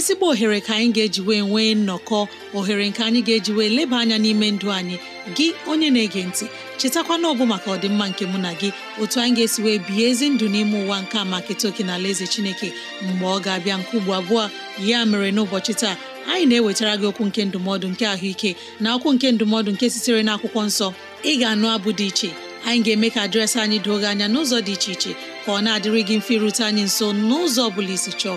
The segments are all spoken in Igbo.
ezigbo ohere ka anyị ga-eji wee nwee nnọkọ ohere nke anyị ga-eji wee leba anya n'ime ndụ anyị gị onye na-ege ntị chetakwana ọbụ maka ọdịmma nke mụ na gị otu anyị ga-esi wee bihe ezi ndụ n'ime ụwa nke a maka etoke na ala eze chineke mgbe ọ ga-abịa nke ugbo abụọ ya mere n'ụbọchị taa anyị na-ewetara gị okwu nke ndụmọdụ nke ahụike na okwu nke ndụmọdụ nke sitere n'akwụkwọ nsọ ị ga-anụ abụ dị iche anyị ga-eme ka dịrasị anyị doo gị anya n'ụzọ dị iche iche ka ọ na-adịrị gị mfe irute anyị nso n'ụzọ ọ bụla isi chọọ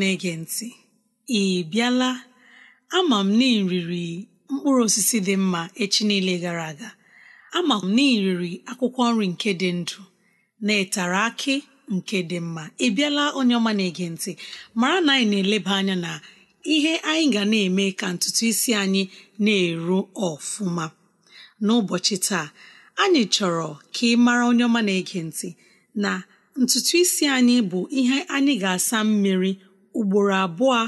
na-ege ntị ị bịala ama m na mkpụrụ osisi dị mma echi niile gara aga ama m na akwụkwọ nri nke dị ndụ na ịtara akị nke dị mma ị bịala onye ọma na-ege ntị mara na anyị na-eleba anya na ihe anyị ga na-eme ka ntutu isi anyị na-eru ọfụma n'ụbọchị taa anyị chọrọ ka ị mara onye ọma na-ege ntị na ntutu isi anyị bụ ihe anyị ga-asa mmiri ugboro abụọ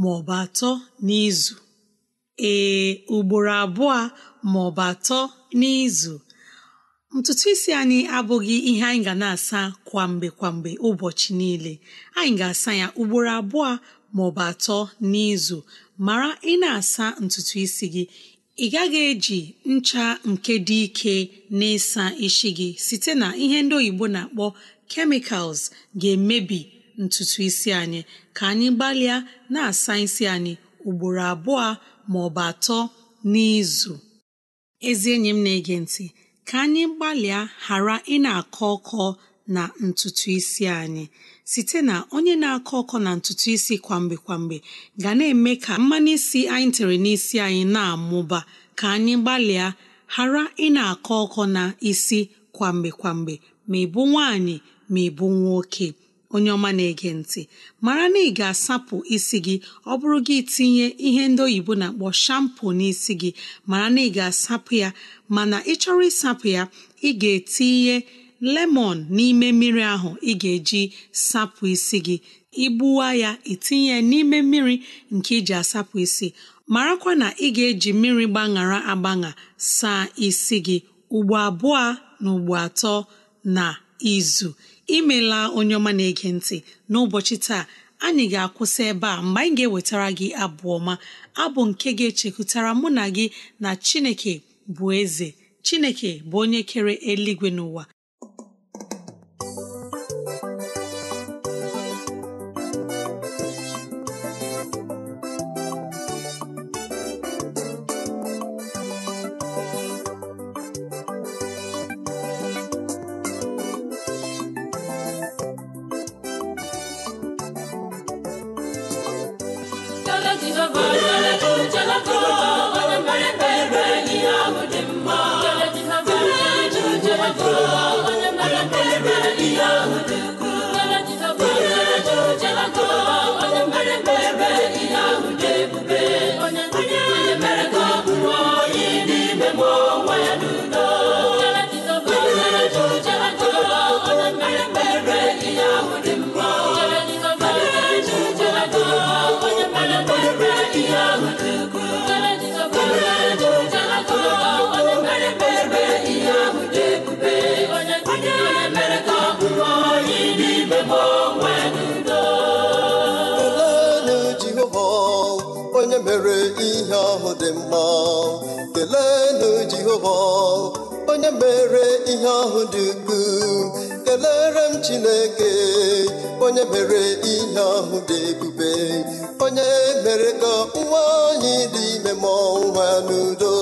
ma ọ bụ atọ n'izu ee ugboro abụọ ma ọ bụ atọ n'izu ntutu isi anyị abụghị ihe anyị ga na-asa kwamgbe kwamgbe ụbọchị niile anyị ga-asa ya ugboro abụọ ma ọ bụ atọ n'izu mara ị na-asa ntutu isi gị ị gaghị eji ncha nke dị ike na-ịsa isi gị site na ihe ndị oyibo na-akpọ kemikals ga-emebi ntutu isi anyị ka anyị gbalịa na-asa isi anyị ugboro abụọ ma ọ bụ atọ n'izu ezi enyi m na-ege ntị ka anyị gbalịa ghara ị na-akọ ọkọ na ntutu isi anyị site na onye na-akọ ọkọ na ntutu isi kwamgbe kwamgbe ga na-eme ka mmanụ isi anyị tere n'isi anyị na-amụba ka anyị gbalịa ghara ị na-akọ ọkọ na isi kwamgbe kwamgbe ma ịbụ nwaanyị ma ịbụ nwoke onye ọma na-ege ntị mara na ị ga-asapụ isi gị ọ bụrụ gị tinye ihe ndị oyibo na-akpọ na n'isi gị mara na ị ga-asapụ ya mana ị chọrọ ịsapụ ya ị ga-etinye lemon n'ime mmiri ahụ ị ga-eji sapụ isi gị igbuwa ya itinye ya n'ime mmiri nke iji asapụ isi marakwa na ị ga-eji mmiri gbaṅara agbaṅa saa isi gị ugbo abụọ na ugbo atọ na izu imela onye ọma na-ege ntị n'ụbọchị taa anyị ga-akwụsị ebe a mgbe anyị ga-ewetara gị abụ ọma abụ nke ga-echekwutara mụ na gị na Chineke bụ eze Chineke bụ onye kere eluigwe n'ụwa Jalago, Jalago, Jalago. jehova onye mere ihe ahụ dị mma keleenụ jehova onye mere ihe ahụ dị ukwuu kelere m chineke onye mere ihe ahụ dị ebube onye mere ka nwa anyị dị ime mụọ nwa n'udo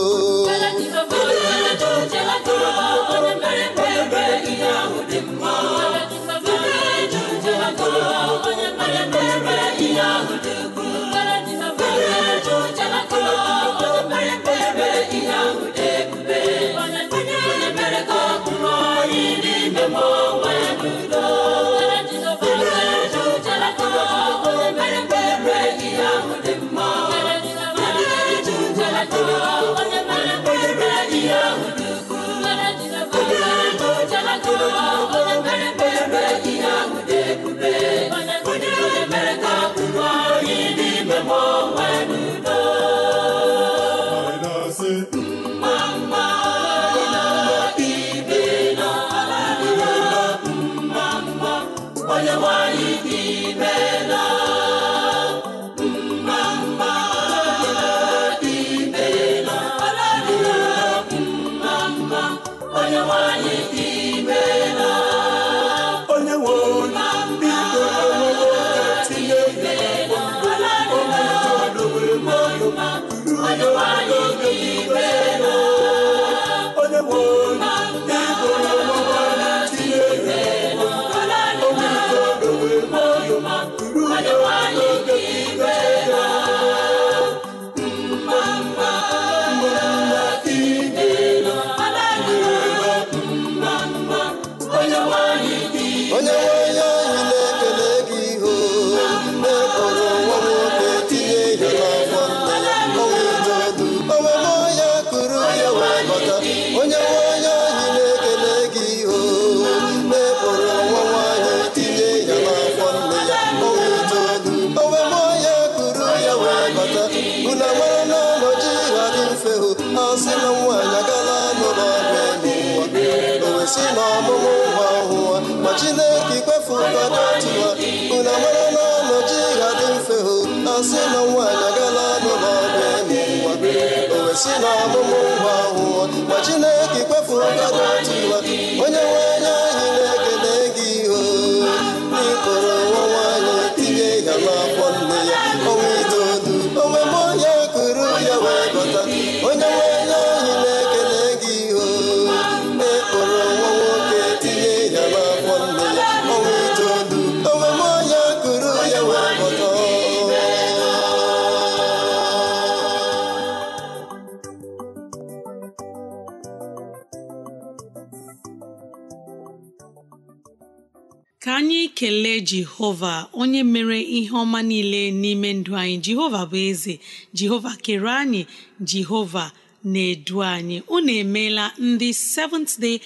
jehova onye mere ihe ọma niile n'ime ndụ anyị jehova bụ eze jehova kere anyị jehova na-edu anyị unu emeela ndị Seventh Day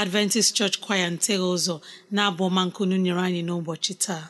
Adventist Church Choir ntegha ụzọ na-abụ ọma nkunu nyere anyị n'ụbọchị taa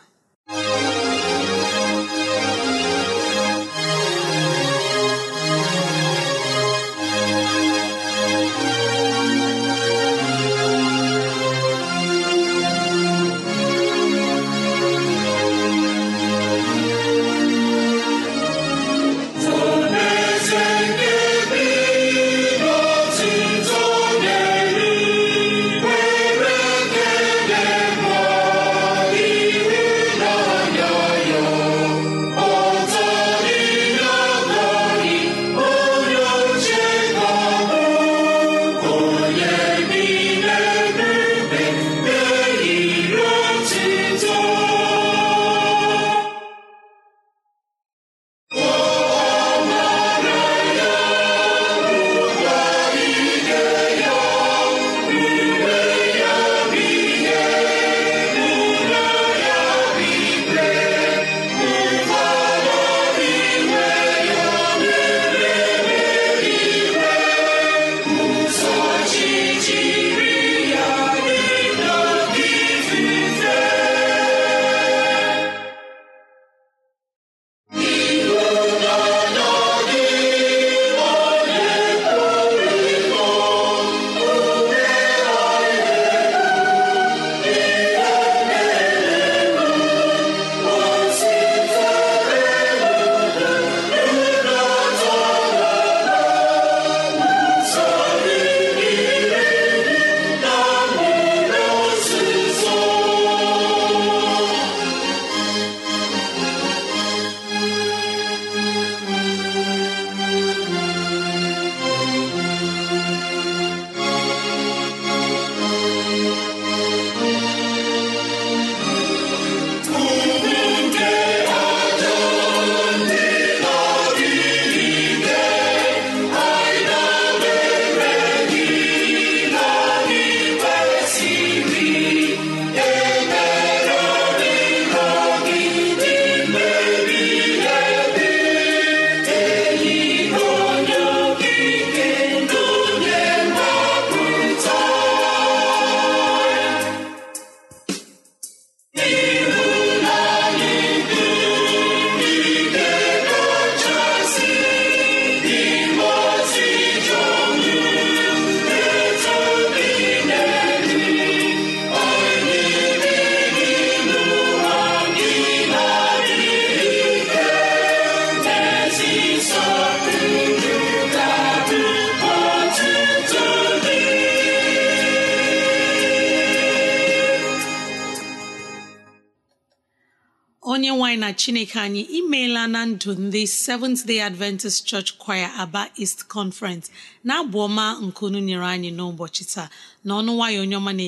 anyị na chineke anyị imeela na ndụ ndị Seventh Day Adventist Church Choir Aba East Conference na-abụ ọma nke nyere anyị n'ụbọchị taa na ọnụ nwayọ onye ọma na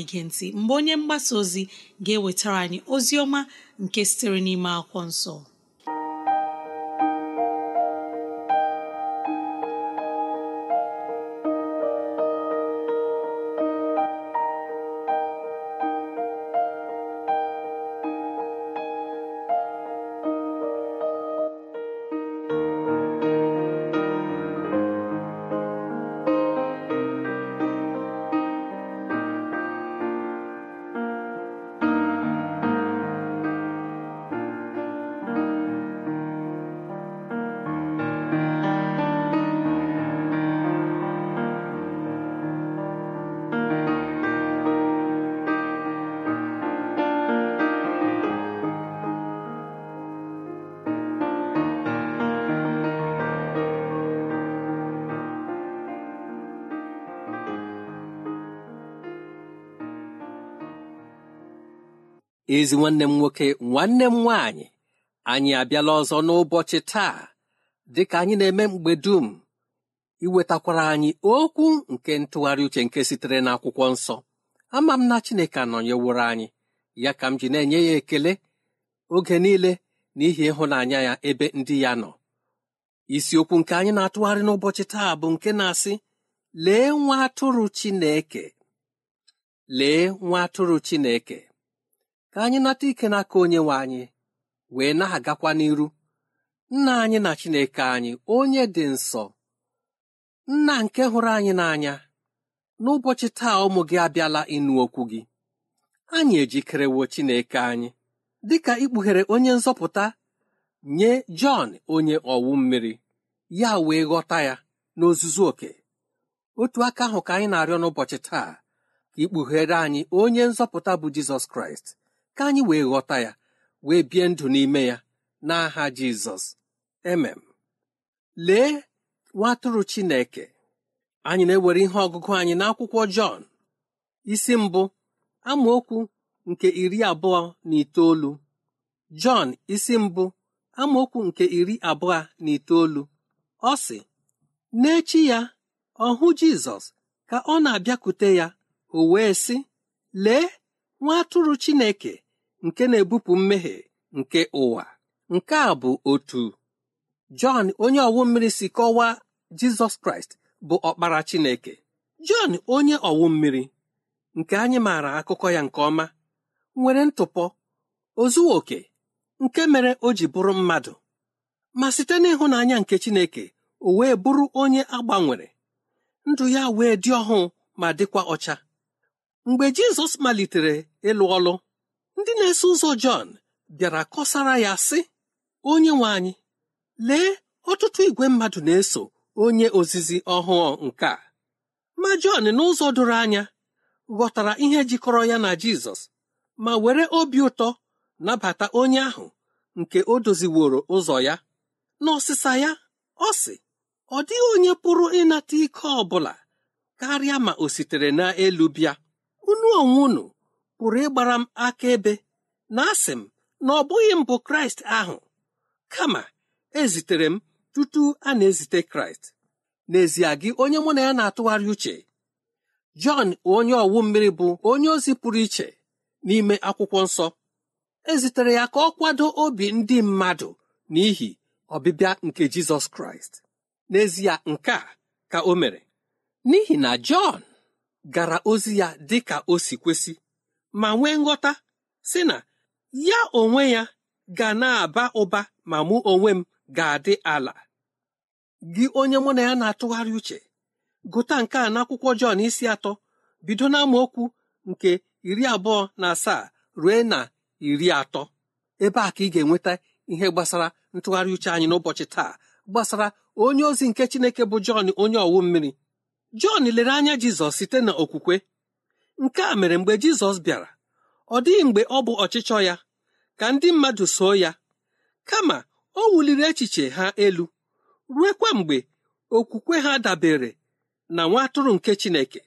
mgbe onye mgbasa ozi ga-ewetara anyị ozi ọma nke sitere n'ime akwụkwọ nsọ ezi nwanne m nwoke nwanne m nwaanyị anyị abịala ọzọ n'ụbọchị taa dịka anyị na-eme mgbe dum iwetakwara anyị okwu nke ntụgharị uche nke sitere n'akwụkwọ nsọ ama m na Chineke anọnyeworo anyị ya ka m ji na-enye ya ekele oge niile n'ihi ịhụnanya ya ebe ndị ya nọ isiokwu nke anyị na-atụgharị n'ụbọchị taa bụ nke na-asị lee nwa atụrụ Chineke lee nwa atụrụ Chineke ka anyị nata ike n'aka onye nwe anyị wee na-agakwa n'iru nna anyị na chineke anyị onye dị nsọ nna nke hụrụ anyị n'anya n'ụbọchị taa ụmụ gị abịala ịnụ okwu gị anyị ejikerewo chineke anyị dịka ikpughere onye nzọpụta nye jọn onye ọwụ mmiri ya wee ghọta ya n'ozuzu oke otu aka ahụ ka anyị na-arịọ n'ụbọchị taa ka ikpughere anyị onye nzọpụta bụ jizọs kraịst ka anyị wee ghọta ya wee bie ndụ n'ime ya n'aha jizọs emem lee nwatụrụ chineke anyị na-ewere ihe ọgụgụ anyị n'akwụkwọ jọn isi mbụ amaokwu nke iri abụọ na itoolu jọn isi mbụ amaokwu nke iri abụọ na itoolu ọ sị n'echi ya ọhụ jizọs ka ọ na-abịakwute ya o wee sị lee nwa atụrụ Chineke nke na-ebupụ mmehie nke ụwa nke a bụ otu Jọn onye ọwụ mmiri si kọwaa Jizọs Kraịst bụ ọkpara Chineke Jọn onye ọwụ mmiri nke anyị maara akụkọ ya nke ọma nwere ntụpọ ozu oke nke mere o ji bụrụ mmadụ ma site n'ịhụnanya nke Chineke o wee bụrụ onye agbanwere ndụ ya wee dị ọhụụ ma dịkwa ọcha mgbe Jizọs malitere ịlụ ọlụ ndị na-eso ụzọ Jọn bịara kọsara ya sị onye nwe anyị lee ọtụtụ igwe mmadụ na-eso onye ozizi ọhụụ nke a ma Jọn n'ụzọ doro anya ghọtara ihe jikọrọ ya na Jizọs ma were obi ụtọ nabata onye ahụ nke o doziworo ụzọ ya n'ọsịsa ya ọ sị ọ dịghị onye pụrụ ịnata ike ọ bụla karịa ma o sitere n'elu bịa unu onwe pụrụ ịgbara m ebe na asị m na ọ bụghị mbụ kraịst ahụ kama ezitere m tutu a na-ezite kraịst n'ezie gị onye mụ na ya na-atụgharị uche jọn onye ọwụ mmiri bụ onye ozi pụrụ iche n'ime akwụkwọ nsọ ezitere ya ka ọ kwado obi ndị mmadụ n'ihi ọbịbịa nke jizọs kraịst n'ezie nke a ka o mere n'ihi na jọn gara ozi ya dị ka o si kwesị ma nwee nghọta si na ya onwe ya ga na-aba ụba ma mụ onwe m ga-adị ala gị onye mụ na ya na-atụgharị uche gụta nke a n'akwụkwọ Jọn isi atọ bido na okwu nke iri abụọ na asaa ruo na iri atọ ebe a ka ị ga-enweta ihe gbasara ntụgharị uche anyị n'ụbọchị taa gbasara onye ozi nke Chineke bụ Jọn onye ọwụ mmiri Jọn lere anya Jizọs site na nke a mere mgbe Jizọs bịara ọ dịghị mgbe ọ bụ ọchịchọ ya ka ndị mmadụ soo ya kama o wuliri echiche ha elu ruekwa mgbe okwukwe ha dabere na nwa atụrụ nke Chineke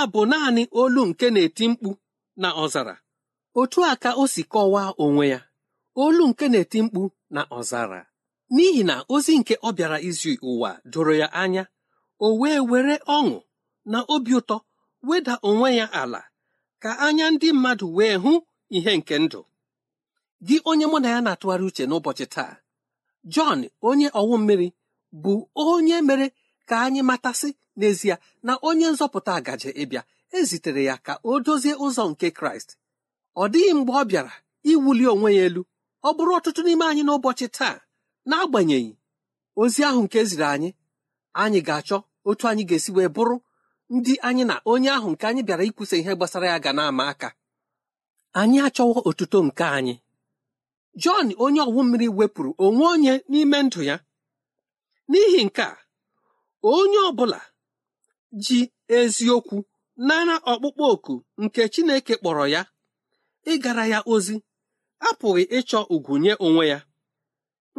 a bụ naanị olu nke na-eti mkpu na ọzara otu a ka o si kọwaa onwe ya olu nke na-eti mkpu na ọzara n'ihi na ozi nke ọ bịara izu ụwa doro ya anya o wee were ọṅụ na obi ụtọ weda onwe ya ala ka anya ndị mmadụ wee hụ ihe nke ndụ gị onye mụ na ya na-atụgharị uche n'ụbọchị taa Jọn onye ọwụ mmiri bụ onye mere ka anyị matasị n'ezie na onye nzọpụta gaje ịbịa ezitere ya ka o dozie ụzọ nke kraịst ọ dịghị mgbe ọ bịara iwuli onwe ya elu ọ bụrụ ọtụtụ n'ime anyị n'ụbọchị taa n'agbanyeghị ozi ahụ nke ziri anyị anyị ga-achọ otu anyị ga-esi wee bụrụ ndị anyị na onye ahụ nke anyị bịara ikwusa ihe gbasara ya ga na-ama aka anyị achọwo otuto nke anyị Jọn onye ọwụ mmiri wepụrụ onwe onye n'ime ndụ ya n'ihi nke a onye ọ bụla ji eziokwu nara ọkpụkpọ oku nke Chineke kpọrọ ya ịgara ya ozi apụghị ịchọ ugwu nye onwe ya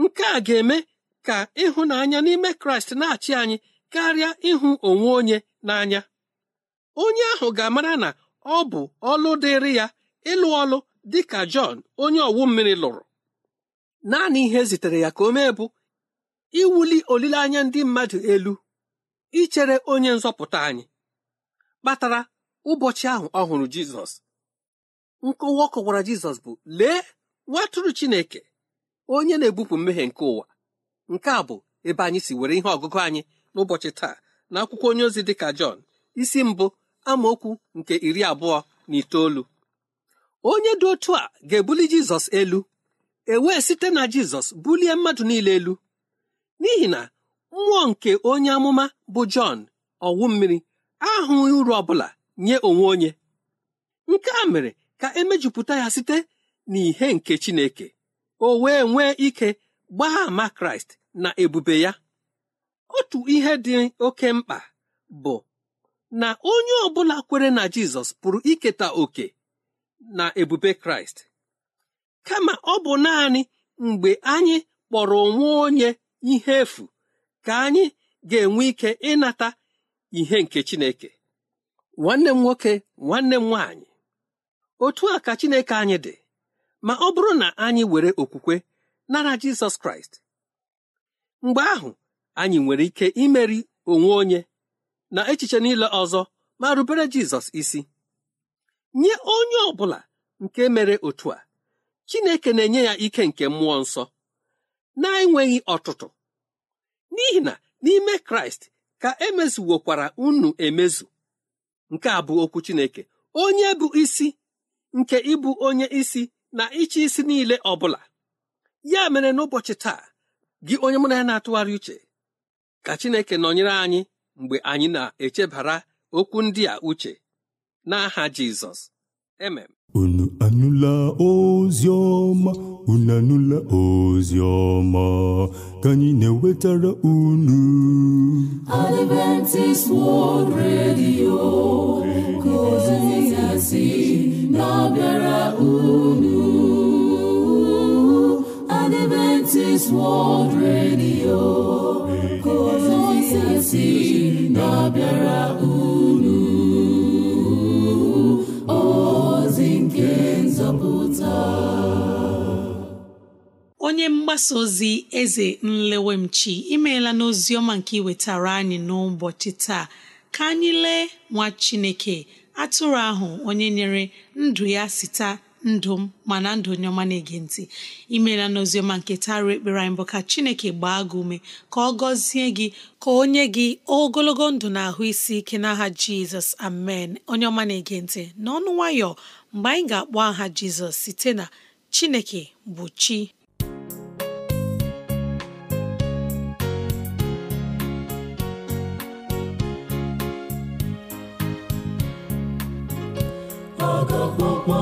nke a ga-eme ka ịhụnanya n'ime Kraịst na-achị anyị karịa ịhụ onwe onye n'anya onye ahụ ga-amara na ọ bụ ọlụ dịrị ya ịlụ ọlụ dị ka Jọn onye ọwụ mmiri lụrụ naanị ihe e zitere ya ka o mee bụ iwuli olileanya ndị mmadụ elu ichere onye nzọpụta anyị kpatara ụbọchị ahụ ọ hụrụ jizọs nkọwa ọ kọwara jizọs bụ lee nwatụrụ chineke onye na-ebupụ mmehie nke ụwa nke a bụ ebe anyị si nwere ihe ọgụgụ anyị n'ụbọchị taa na akwụkwọ onye ozi dị ka jọn isi mbụ amaokwu nke iri abụọ na itoolu onye dị otu a ga-ebuli jizọs elu e wee site na jizọs bulie mmadụ niile elu n'ihi na mmụọ nke onye amụma bụ Jọn ọwụ mmiri ahụghị uru ọbụla nye onwe onye nke a mere ka emejupụta ya site n'ihe nke Chineke o wee nwee ike gbaa ama Kraịst na ebube ya otu ihe dị oke mkpa bụ na onye ọbụla kwere na Jizọs pụrụ iketa oke na ebube Kraịst kama ọ bụ naanị mgbe anyị kpọrọ onwe onye ihe efu ka anyị ga-enwe ike ịnata ihe nke Chineke nwanne m nwoke nwanne m nwaanyị otu a ka Chineke anyị dị ma ọ bụrụ na anyị were okwukwe nara Jizọs Kraịst mgbe ahụ anyị nwere ike imeri onwe onye na echiche niile ọzọ ma rubere Jizọs isi nye onye ọ bụla nke mere otu a Chineke na-enye ya ike nke mmụọ nsọ na-enweghị ọtụtụ n'ihi na n'ime kraịst ka emezuwokwara unu emezu nke a bụ okwu chineke onye bụ isi nke ịbụ onye isi na ịchị isi niile ọ bụla ya mere n'ụbọchị taa gị onye mụ na ya na-atụgharị uche ka chineke nọnyere anyị mgbe anyị na-echebara okwu ndị a uche n'aha Jizọs emem unu anụla ozi ọma unu anụla ozi ọma ka anyị na-ewetara unu Adventist World Radio ka na-abịara unu mgbasa ozi eze nlewemchi imeela n'ozi ọma nke iwetara anyị n'ụbọchị taa ka anyị lee nwa chineke atụrụ ahụ onye nyere ndụ ya sita ndụ m mana ndụ onye ọma na-ege ntị imeela n'oziọma nke tarị ekpere anyị bụ ka chineke gbaa gị ume ka ọ gọzie gị ka o nye gị ogologo ndụ na ahụ isi ike n'aha jizọs amen onye ọma na-ege ntị n'ọnụ nwayọ mgbe anyị ga-akpọ aha jizọs site na chineke bụ chi gwọgwọ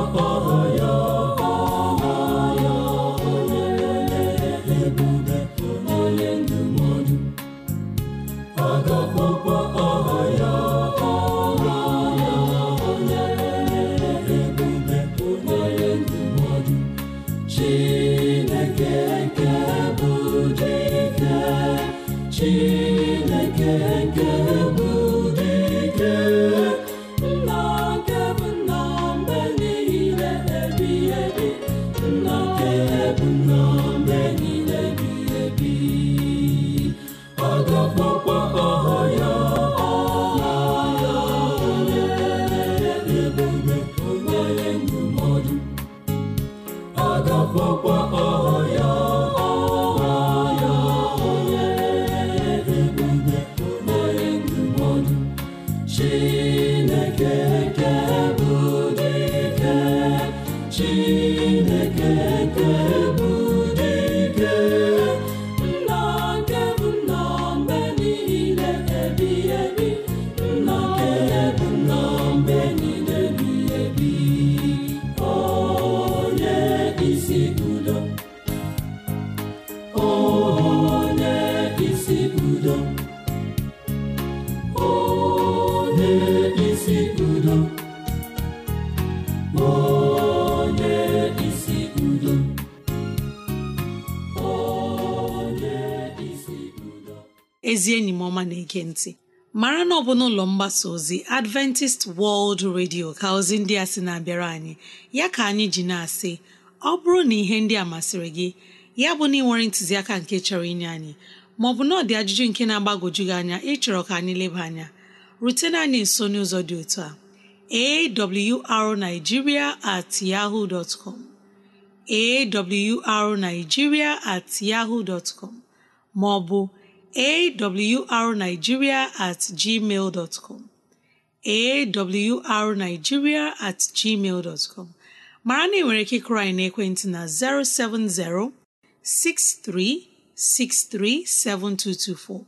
ezi enyi m ọma na-ege ntị mara na ọ bụ n'ụlọ mgbasa ozi adventist world radio ka ozi ndị a sị na-abịara anyị ya ka anyị ji na-asị ọ bụrụ na ihe ndị a masịrị gị ya bụ na ị nwere ntụziaka nke chọrọ inye anyị maọbụ na ọ ajụjụ nke na agbagoju gị anya ịchọrọ ka anyị leba anya rutena anyị nso n'ụzọ dị otu a arigiria at yahoo com awrnigeria at maọbụ awrnigeria at gmail dot com awrnigeria at gmail dot com mara na ị nwere ike kụrụ anyị n'ekwentị na 070 6363 7224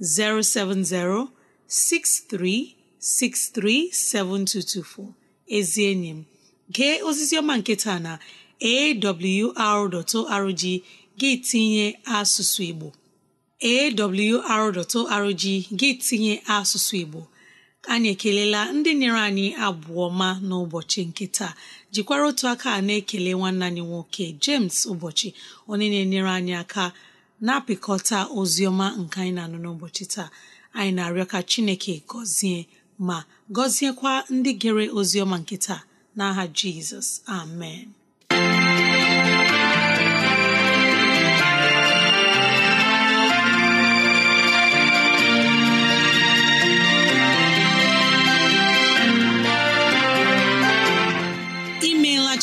070 6363 7224 ezi enyi m gee osisi ọma nke taa na awr.org gị tinye asụsụ Igbo awr.org gị tinye asụsụ Igbo anyị ekelela ndị nyere anyị abụọ ma n'ụbọchị nke taa jikwara otu aka na-ekele nwanne anyị nwoke James ụbọchị onye na-enyere anyị aka na-apịkọta oziọma ọma nke anyị na-anụ n'ụbọchị taa anyị na-arịọ ka Chineke gọzie ma gọziekwa ndị gere oziọma nke taa n'aha Jizọs amen